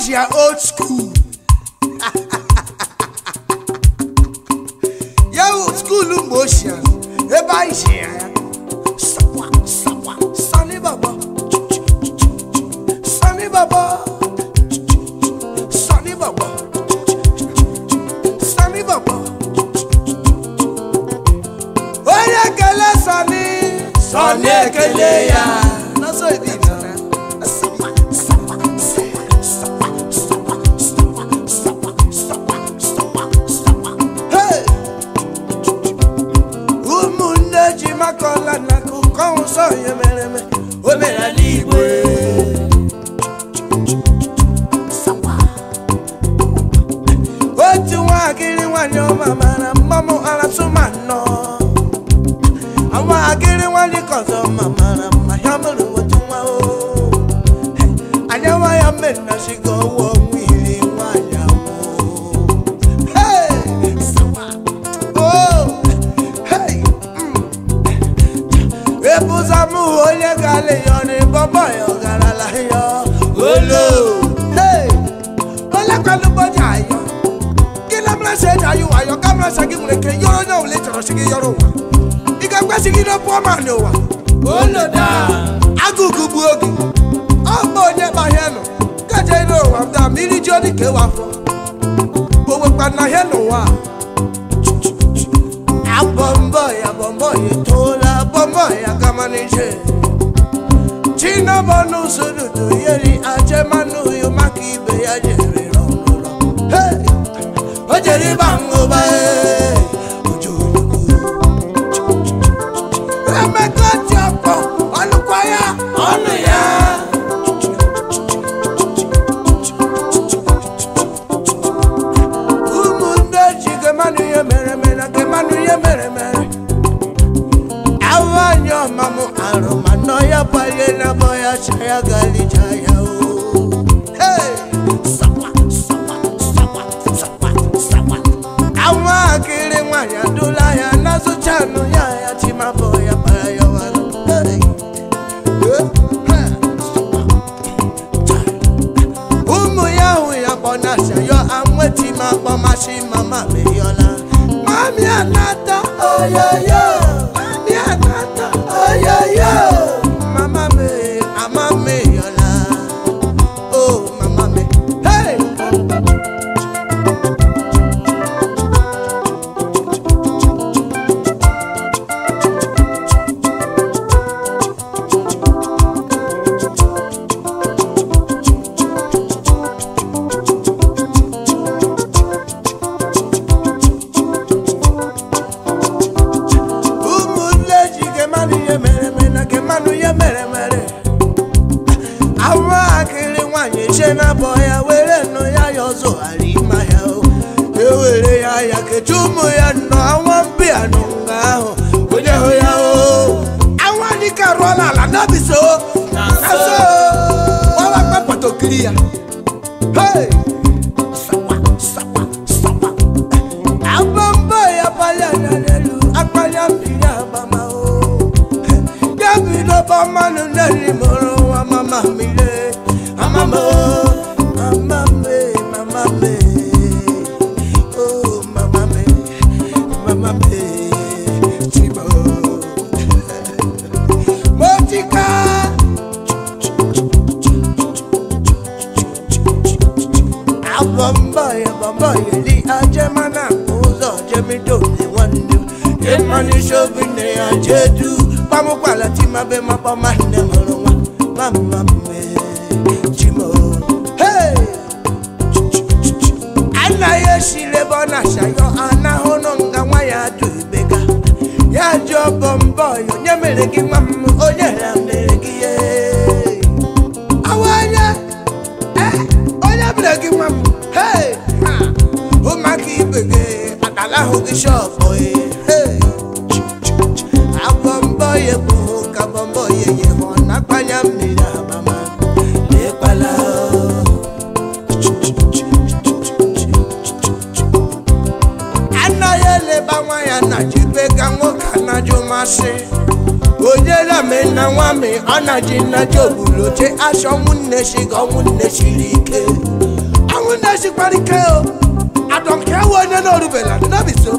Asia old school. Yeah, old school motion. Ebe Asia ya. Sawa sawa Sani Baba. Sani Baba. Sani Baba. Sani Baba. Onye kele Sani. Sani ekele Oh, mere eme o asigide pụọ ma n'ụwa agụgụ bụ oge ọ mgbe onye gbahie nọ kaje ire ụwa da mmiri ji odi ka ewe afọ owekwa na hie n'ụwa abọmbọ ya bọmbọ ya etoola bọmbọ ya gama n'ije chinabọnụ sodudu yeri ajemanụ yo maka ibe ya jere ọnụlọ o jere ịba ngụba ee ye meremere awanyo ya paye na boya chaya gali chaya o hey sawa sawa sawa sawa sawa awa kiri mwanya dula ya nazo chano ya ya chima boya payo hey umu ya Mami Anata, oyoyo. Oh, Mami Anata, oh, yo. ashilebo na shayo anahono nga nwa ya adụbega ya ji ọbọ mbọ onye mere gị nwa m onye ha mere gị ye awanye onye mere gị nwa m hei ụmụaka ibe gị akalahụ gị shọpụ ọnọdụ nnaja ogburu oche asha ọnwụ nneshi ga ọnwụ nneshiri ike ọnwụ nneshikwara ike o adọnke ewe onye n'orubela nnabiso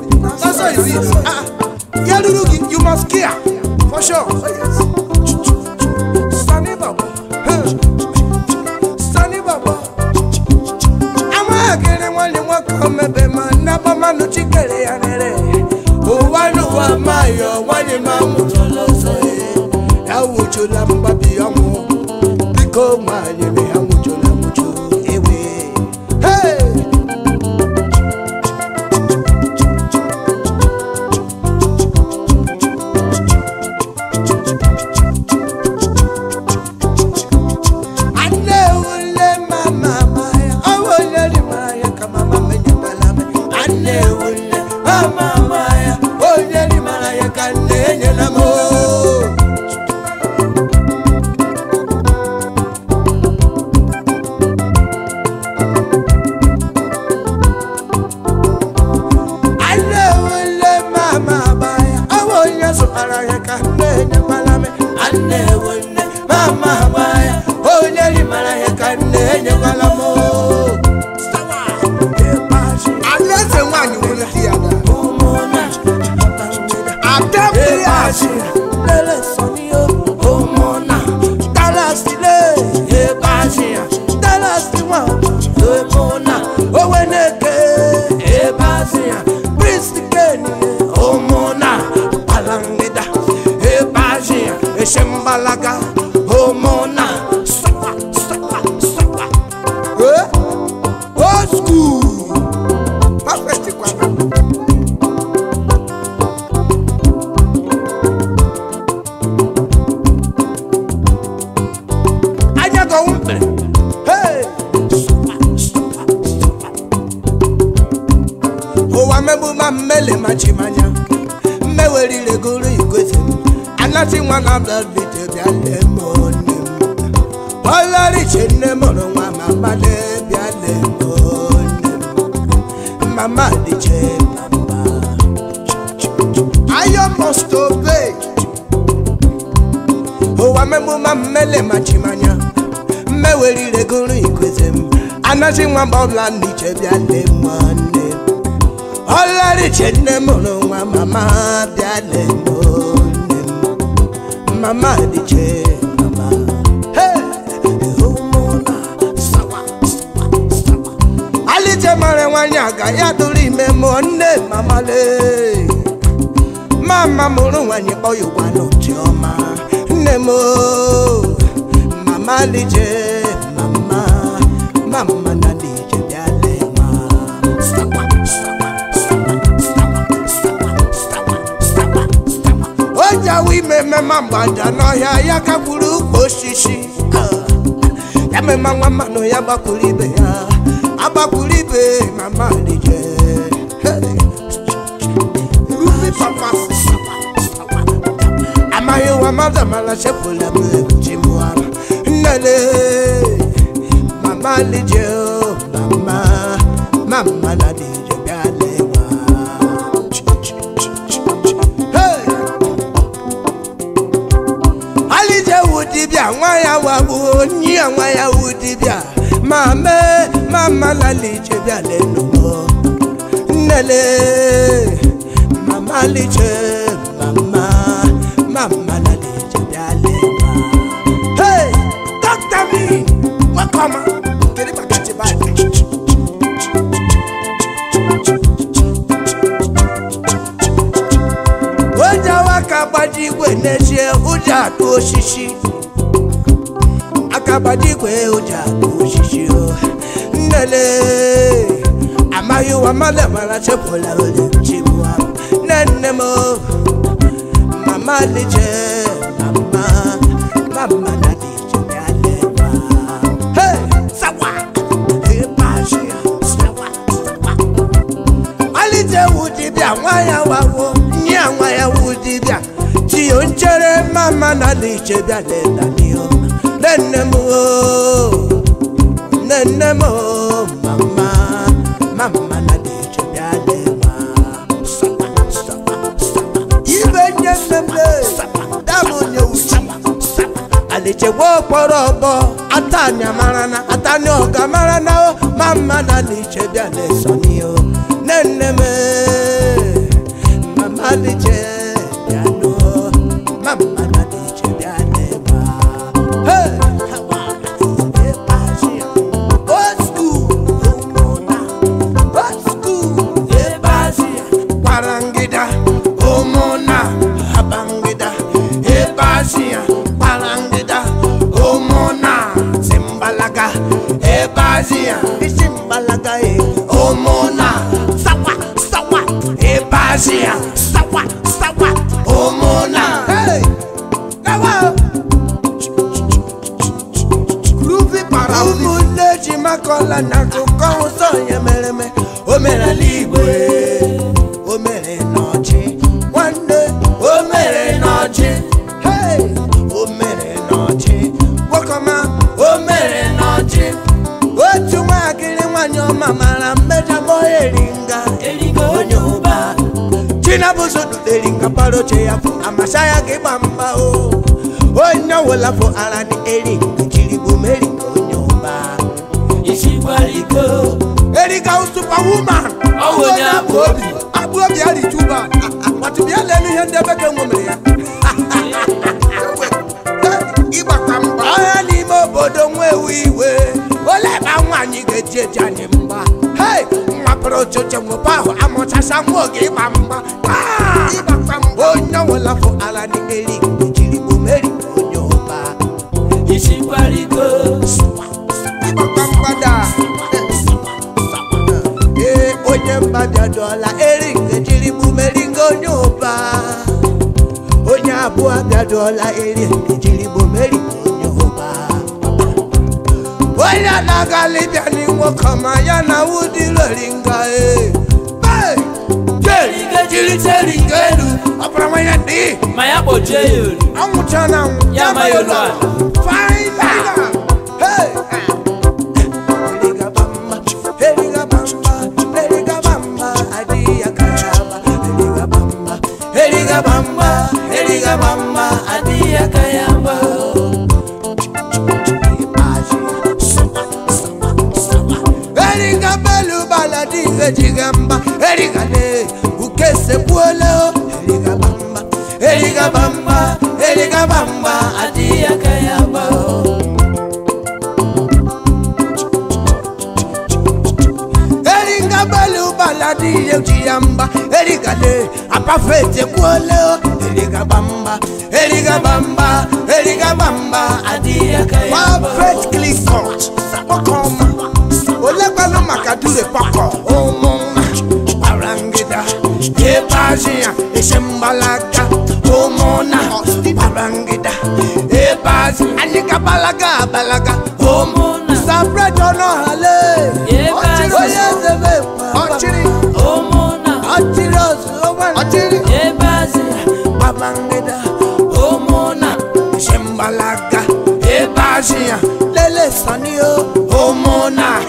ọsọ izi ah, ah. ya ruru gị you must care for sure. Sani Baba. Sani Baba. Amagere nwale nwoke omebe ma nnabamanụ chikere ya rere ụwa n'ụwa mayo yo la mon papi werire gụrụ igosi anasị nwa na blọdbite bịa lee m onye m ọlọriche nne mụrụ nwa mama lee bịa lee m onye m mama dịche papa ayo must obey ụwa memụma mmele machimanya mmewerire gụrụ igosi blood anasị nwa m ọla n'iche bịa lee nwanne ọlọriche nne mụrụ nwa mama bịa lele mama, m mama dịche mama alije mara nwanyị aga ya dụrụ ime mụọ nne mama lee mama mụrụ nwanyị kpọ ya ụgwa n'ochiọma mama, m mama alije emema mgbada n'ọhịa ya kakwuru ukwu osisi ya mema nwa mmanụ ya gbakwuru be, ya agbakwuru ibe mama rije amaghị ụwa mmadụ amara chepụla m ebuchi mụara nnele mama rije oh, mama mama na dije yawawo ní àwọn Yahudi bíà máa mẹ́ máa má lálẹ́ ìjẹ́ bíà lẹ́nu mọ́ nílẹ̀ màmá lè jẹ́ màmá màmá lálẹ́ ìjẹ́ bíà lẹ́nu mọ́. hey dókítà mi wọ́n kọ́ ma kiri bàtà ti báyìí. ó já wákàtí wẹ̀ ní ẹsẹ̀ ó jà tó ṣíṣí kabadigwe ụjọ ochichi nnele amaghị ụwa mmadụ mara chepụla ole chibụa nne m mama liche mama mama na hey sawa ịbashi e ya sawa malite wu dibịa nwa ya wawo nye nwa ya wu dibịa chi o mama na liche bịa leta n'ihu Nenemo, nenemo, mama mama na di chobia de ma sapa sapa sapa ibe nene me damu nye uchi aleche wo poro bo atanya marana atanya oga marana o oh, mama na di chobia de sonio amakọla n'akụkọ ụzọ onye mere eme o mere ala igwe o mere n'ọchị nwanne o mere n'ọchị o mere n'ọchị gwakọma o mere n'ọchị otu nwaakịrị nwanyị ọma mara mmejabọ eringa erigo onye ụba chinabụzoduderinga para oche ya bụ amasa ya gị gba mgba o onye ọwụla bụ ara dị eri nke jiri Mariko. Erika was superwoman. Oh, yeah, Bobby. I will be at it too bad. But to be a lady and never can Iba kamba. I need more bodom where we were. Well, I'm one you get Hey, my proto Jamuba. I'm what I saw. Give Mamba. Iba kamba. Oh, no, I love for bụ abịaduola eri ejirigbo meri yehova onye anaghị alịbịa n'inwe kama ya na wudiloringa e jiriterigeru ọpụramanya dị ma ya kpọjie ya ori anwụcha na ya ma ya ụlọ ebejigamba erigane ukesebuoleo erigabamba erigabamba erigabamba adiyakayabao baladiye utiyamba erigale apafete Sabokoma, Makadure pakọ Bajia, Eshembalaga, Homona, Barangida, Ebaz, Anika Balaga, Balaga, Homona, Sabra Dono Hale, Ebaz, Ochiri, Homona, Ochiros, Ochiri, Ebaz, Barangida, Homona, Eshembalaga, Ebazia, Lele Sanio, Homona,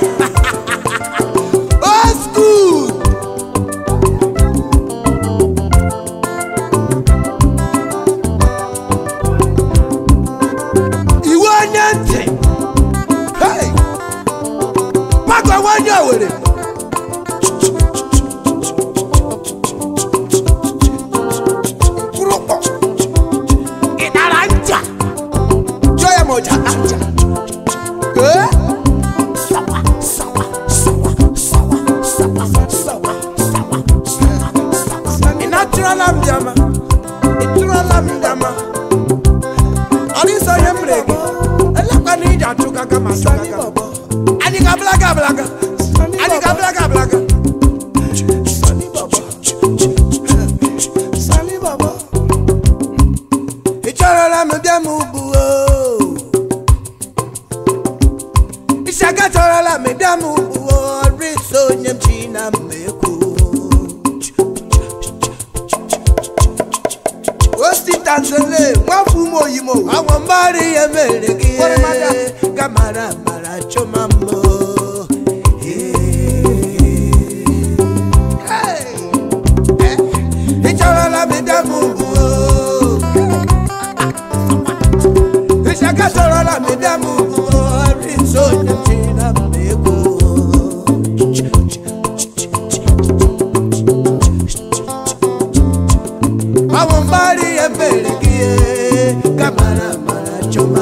pembele camara, kamara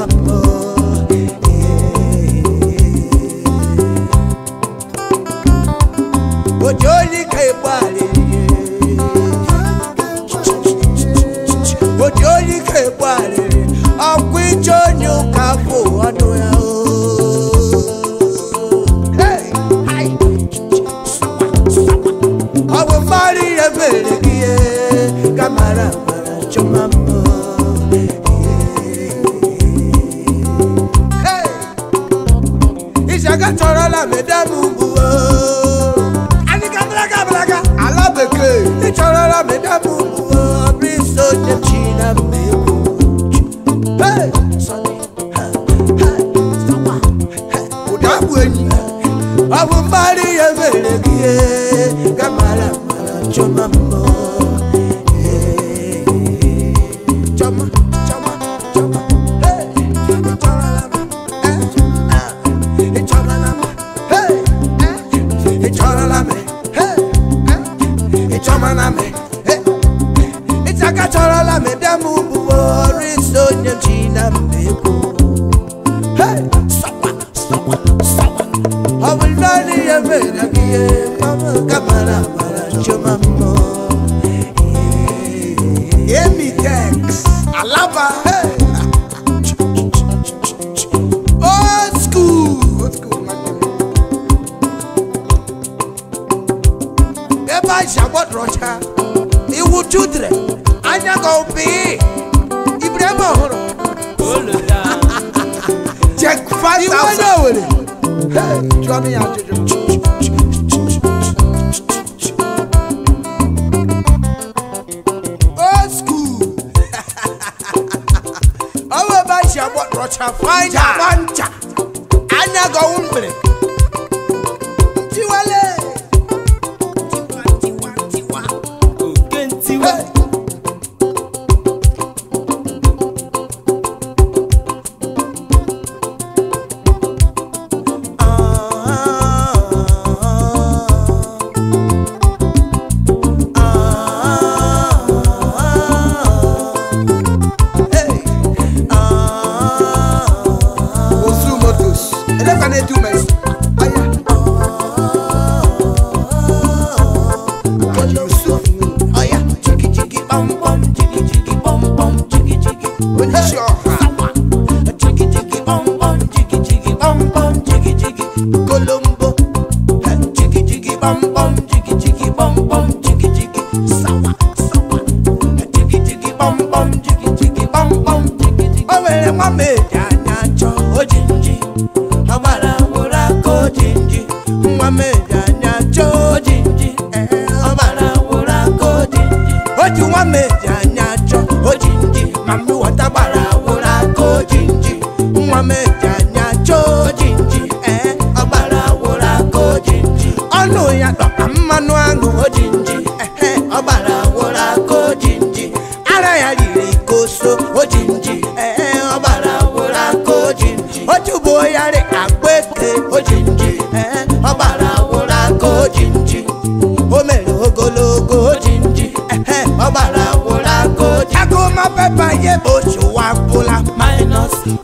mara àtọ̀rọ̀ làmẹ́dẹ́mú bu o. àníkà bíláka bíláka. alábèké. ìtọ̀rọ̀ làmẹ́dẹ́mú bu o. bí sọ́jà jìnnà mẹ́wò. ọ̀dàbù ẹ̀yìn. ọ̀bùnbárí yẹn fèrè kí ẹ gàmàlà màlà jọ̀mọ̀ mọ́. na mbeko hey sawa sawa sawa abulani ya mera biye mama kamara mara choma mo Emi Tex Alaba hey Eba Jabot Rocha, Iwu Anya Gopi. coming out to do. Ọwọ́ bá ṣe àbọ̀ rọ̀ṣà fáìjà. Jàbá ń jà. Ányá gan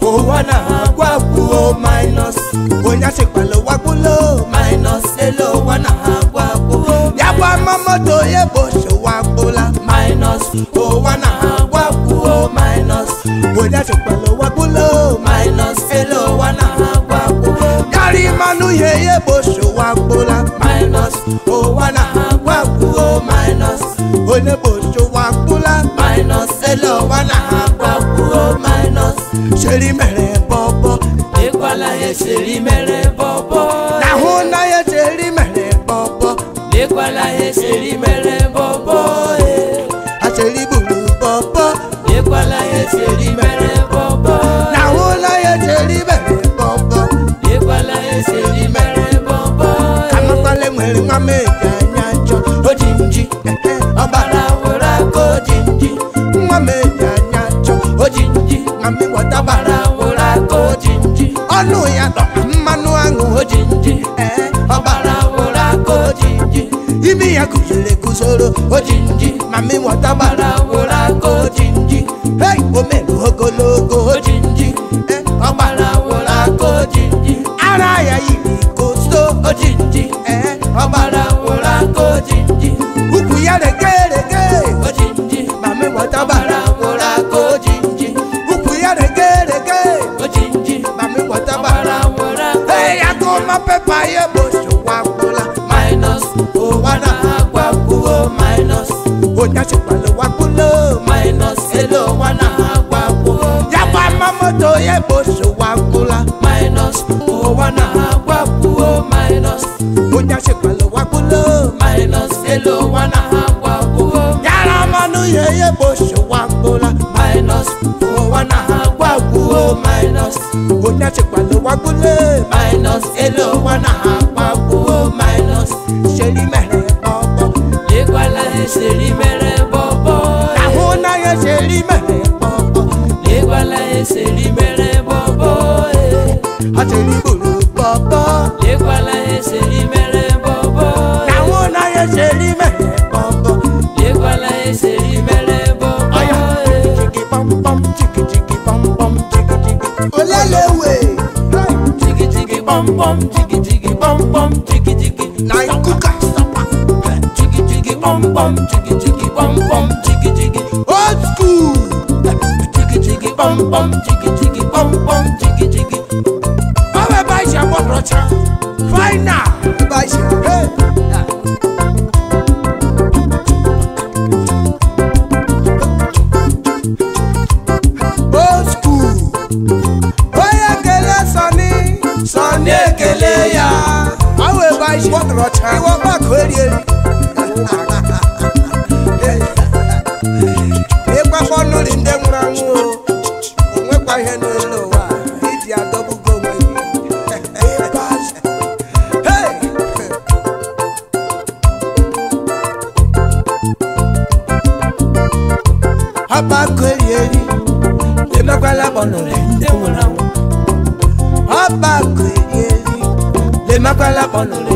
owona agwapuo minus onye chịkwala wakpolo minus elu owona agwapuo ya gwa mamoto ya bochi wakpola minus owona agwapuo minus onye chịkwala wakpolo minus elu owona agwapuo yari manụ ihe ya bochi wakpola minus owona agwapuo minus onye bochi eseri mere bọbọ. n'ahụ na ya eseri mere bọbọ. lekwala eseri mere bọbọ. aseri gburu bọbọ. lekwala eseri mere bọbọ. n'ahụ na ya eseri mere bọbọ. lekwala eseri mere bọbọ. kamakwale nwere nwa mmejọ anya njọ ojinji ọbara nwere aka Jinji. nwa mmejọ anya njọ ojinji na mmịwọta bara nwere aka ojinji ọnụ ya ojinji ọgbarawola ka ojinji imi ya kuziri kuzoro ojinji mami nwata gbarawola ka ojinji hei omelu ogologo ojinji ọgbarawola ka ojinji ara ya yiri kosto ojinji ọgbarawola ka ojinji ukwu ya lege moto yeboso wakula minus owana agwakuo minus onyasekpalo wakulo minus elo wana agwakuo yaramanu yeyeboso wakula minus owana agwakuo minus onyasekpalo wakule minus elo wana agwakuo minus selimere ọkọ. lekwala eserime. eseli mere bobo e. Ateli bolo bobo. Lekwala eseli mere bobo e. Àwọn náà eseli mere bobo. Lekwala eseli mere bobo e. Jigi pam pam jigi jigi pam pam jigi jigi. Olelewe. Jigi jigi pam pam jigi jigi pam pam jigi jigi. Na ikuka sapa. Jigi jigi pam pam jigi jigi pam pam jigi jigi. Old school pom pom jigi jigi pom pom jigi jigi. Báwo bá ṣe gbọ́dọ̀ ṣe? Fáínà. Bá ṣe rẹ̀. Old school. Bóyá kele sọ́ni. Sọ́ni èkele yá. Báwo bá ṣe gbọ́dọ̀ ṣe? Ìwọ bá kórè. 努力。